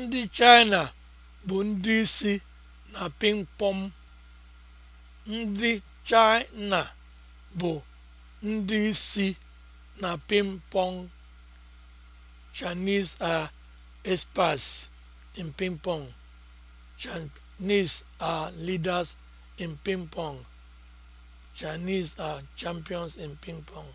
Ndị China bụ ndị isi na pịmpọm. Ndị China bụ ndị isi na pịmpọm. Chinese are experts in ping pong. Chinese are leaders in ping pong. Chinese are champions in ping pong.